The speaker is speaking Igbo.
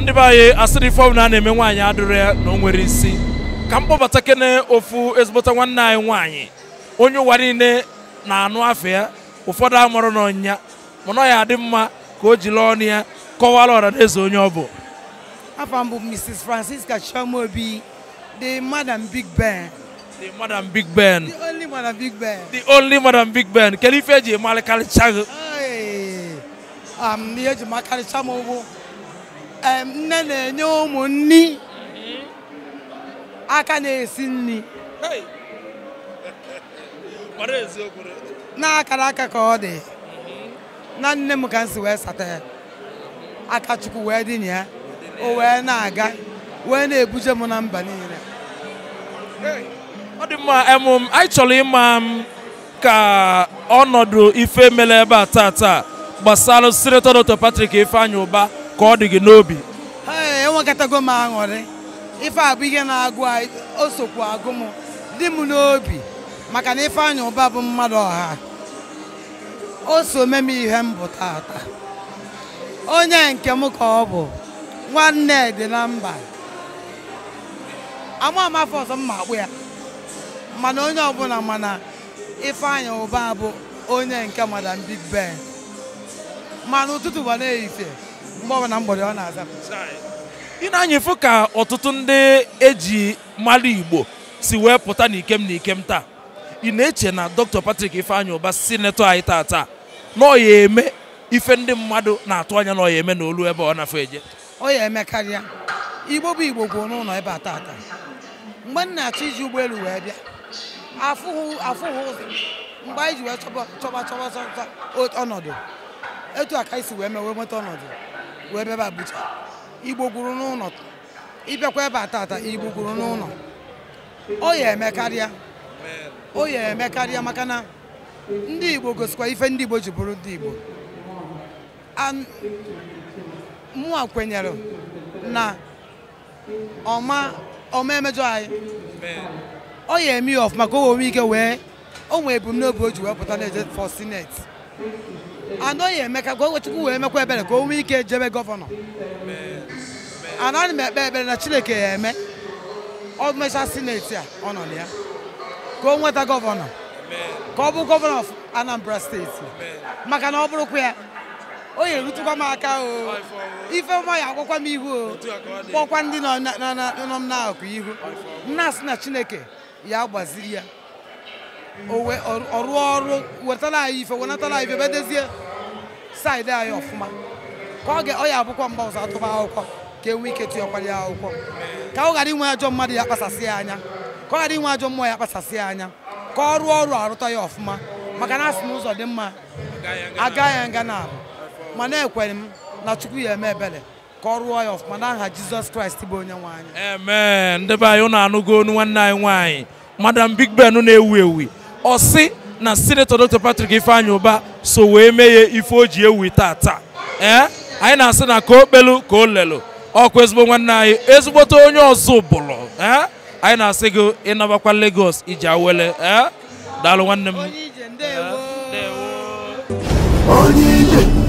ndị be anyị asịrị ife ọbụla a na-eme nwaanyị adịrọ ya na o nwere isi ka m kpọbata kene ofu ezigbota nwanne anyị nwaanyị onye ụwa niile na-anụ afọ ya ụfọdụ amụrụ n'ọnya mana ya adị mma ka o jiri ọnụ ya kọwara ọra na onye ọ bụ afọ mbụ Mrs. Francisca Chiamobi the Madam Big Ben the Madam Big Ben the only Madam Big Ben the only Madam Big Ben kedu ife eji emarịkarịcha gị ihe eji ma m ụgwụ nne na-enye ụmụ nni mm-hmm. aka na-esi nri na-akara aka ka ọ dị mm-hmm. na nne m ka m wee sata ya aka chukwu wee dị ya o wee na-aga wee na-ebuje m na mba niile ọ dị mma anyị chọrọ ịma m ka ọnọdụ ife mere ebe a taa taa gbasara sinetọ Dr Patrick Ifeanyi Ụba ka ọ dị gị n'obi enwekatago m aṅụrị ife a bụ ihe na-agụ o agụ m dị m n'obi maka na Ifeanyi Ụba bụ mmadụ ọha o so me m ihe m bụ tata onye nke m ka ọ bụ nwanne dị na mba ama amafe ọzọ mma akpụ ya mana onye ọbụla mana Ifeanyi Ụba bụ onye nke madam Big Ben ma n'ụtụtụ bụ na-ehife mgbe na mgbede ọ na-aza ị na-anyịfụ ka ọtụtụ ndị eji mmadụ Igbo si wee pụta n'ikem n'ikem taa ị na-eche na Dr. Patrick Ifeanyi Ụba sinetọ anyị taa taa na ọ ya eme ife ndị mmadụ na-atụ anya na ọ ya eme na olu ebe ọ na-afọ eje ọ ya eme karịa Igbo bụ Igbo kwuo n'ụlọ ebe a taata mgbe m na-achọ iji ụgbọelu wee bịa afụghị ụzọ mgbe anyị ji wee chọba chọba chọba ọnọdụ etu aka ka isi wee mee wee nweta ọnọdụ wee bịa ba Abuja igbo gwuru n'ụlọ ịbịakwa ebe a tata igbo gwuru n'ụlọ o ya eme karịa o ya eme karịa maka na ndị igbo gosikwa ife ndị igbo ji bụrụ ndị igbo mụa kwenyere na ọma ọma emejọ anyị ọ ya eme ya ọfụma ka o nwere ike wee o nwee ebumnobi o ji wee pụta na-eje for senate anọghị eme ka o wee mekwa ebere ka o nwee ike jebe gọvanọ anaghị m ekpe ekpere na chineke ya eme ọ mecha sineti a ọ nọ na ya ka o nweta gọvanọ ka ọ bụ gọvanọ ọf anambra steeti maka na ọ bụrụkwa ya o nyere rutụkwa m aka o ife ọma ya agwakwa m ihu o kpọkwa ndị nọ m n'akụkụ ihu nna si na chineke ya gbaziri ya ọ rụọ ọrụ wetara anyị ife wenatara anyị ife ebe dezie saịdị anyị ọfụma ka ọ ọ ya abụkwa mgbe ọzọ atụba akwụkwọ ka enwe ike tụnyekwara ya akwụkwọ ka ọ ghara inwe ajọ mmadụ ya kpasasị ya anya ka ọ ghara inwe ajọ mmụọ ya kpasasị ya anya ka ọ rụọ ọrụ arụta ya ọfụma maka na asị n'ụzọ dị mma aga ya nga na ma na-ekwere m na chukwu ya eme ebere ka ọ rụọ ya ọfụma na aha jizọs kraịst bụ onye nwe anyị. eme ndị be anyị ụnụ anụgo onu nwanne anyị nwaanyị madam big ben na-ewu ewu ọsị na sinetọ Dr. Patrick ifeanya Ụba so wee mee ya ife o ji ewu taa. ee eh? anyị na-asị na ka o kpelu ka o lelu ọkụ ezigbo nwanne anyị ezigbote onye ọzọ ụbụlụ ee eh? anyị na-asị gị ịnabakwa Lagos iji awele ee eh? daalụ nwanne m